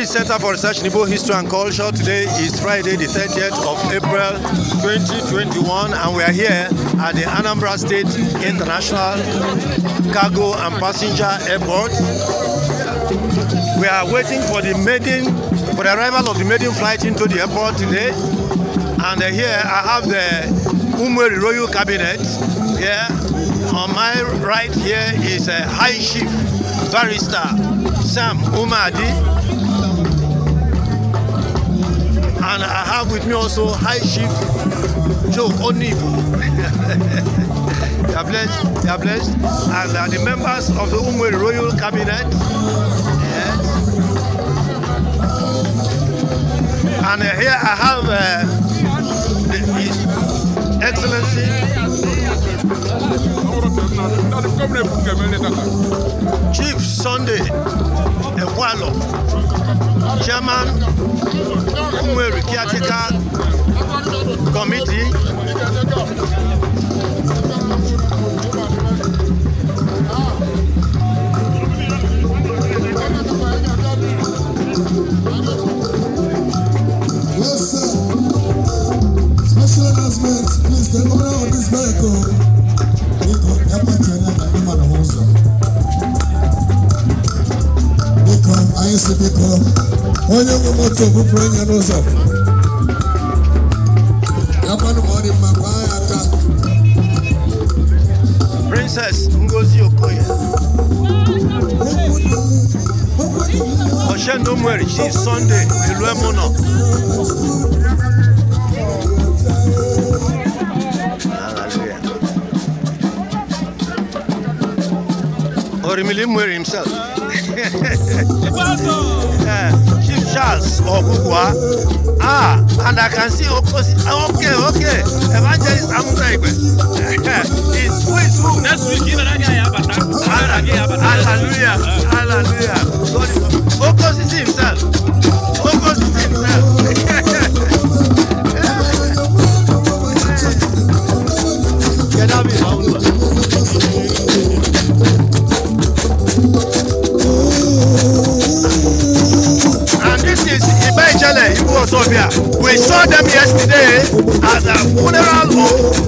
British Center for Research in Igbo History and Culture. Today is Friday, the 30th of April 2021, and we are here at the Anambra State International Cargo and Passenger Airport. We are waiting for the maiden, for the arrival of the maiden flight into the airport today. And uh, here I have the Umeri Royal Cabinet. Here on my right here is a uh, High Chief Barrister Sam Umadi and I have with me also High Chief Joe Onibu. They are blessed. They are blessed. And uh, the members of the Umwe Royal Cabinet. Yes. And uh, here I have uh, His Excellency. Chief Sunday Ewalo, Chairman Umueri caretaker committee. Yes, sir. Special announcement, please, the owner of this vehicle. isi biko onye nwe moto bupụrụ onye n'ụzọ akwanụ ma ọ dị mma gbaa ya aka Princess Ngozi Okoye Oshendo Mweri chi Sunday Eluemu nọ Orimili Mweri himself Eh, Chief Charles Ogugwa. Ah, and I can see opposite. Ah, okay, okay. Evangelist Amuta It's who is who? Next week, Hallelujah. Hallelujah. God is opposite himself. Opposite himself. Eh, eh. Get up here. Ibu Osobia. We saw them yesterday at the funeral home.